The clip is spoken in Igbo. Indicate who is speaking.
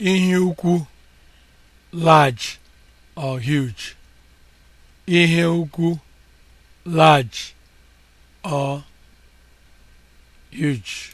Speaker 1: ihe ukwu large or huge ihe ukwu large or
Speaker 2: huge